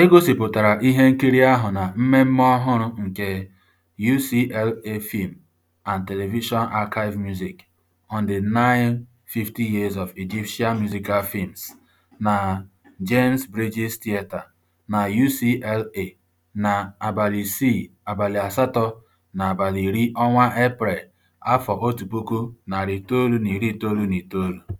E gosipụtara ihe nkiri ahụ na mmemme ọhụrụ nke UCLA Film and Television Archive Music on the 9 Years of Egyptian Musical Films na James Bridges Theatre na UCLA na abalị 6, asatọ na abalị 10 Eprel, 1999.